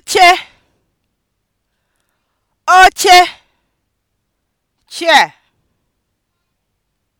oche oche chair